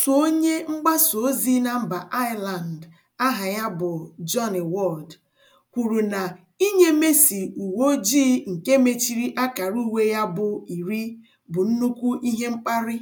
Otu onye mgbasa ozi na mba ireland aha ya bụ johnny Ward kwuru na inye Messi uwe ojii nke mechiri akara uwe ya bụ iri bụ nnukwu ihe mkparị.